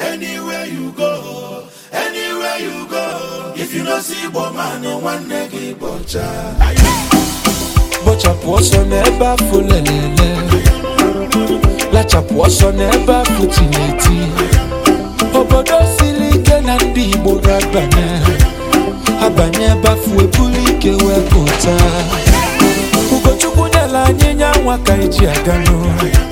Anywhere you go, anywhere you go, if you no see Igbo nwanne gị bọcha. Bọchapụ ọsọ n'ebe afụ lelele, lachapụ ọsọ n'ebe afụ tineti. Obodo siri ike na ndị Igbo ga-abanye, abanye ebe afọ ebulu ike wee pụta. Ugochukwu nyela anyị nya nwa ka eji aga n'ụlọ.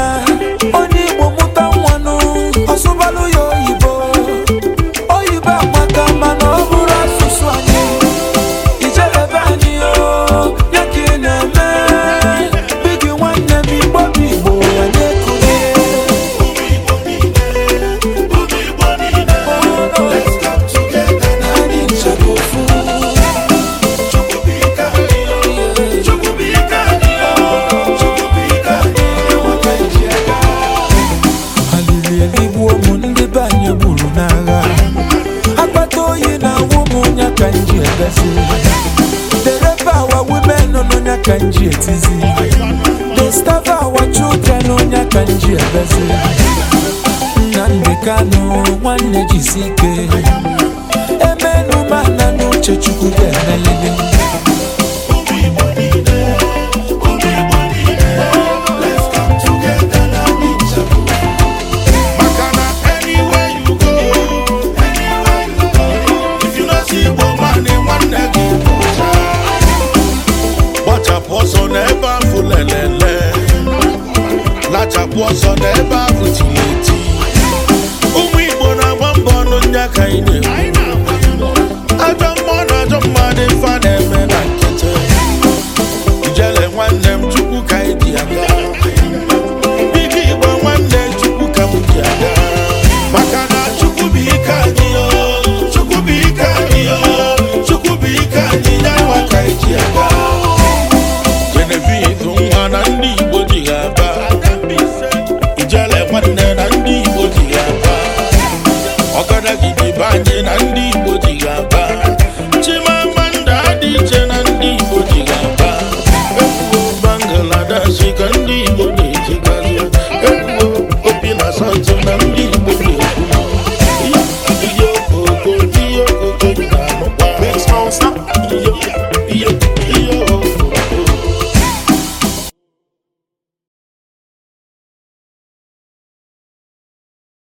The They our women on Etizi. The starve our children on Onya Kanji Etizi. Nande Kano, one na Nuche lelele lachapụ ọzọ n'ebe ahụ eti ọkada gidi be anyị na ndị Igbo dị ga-aba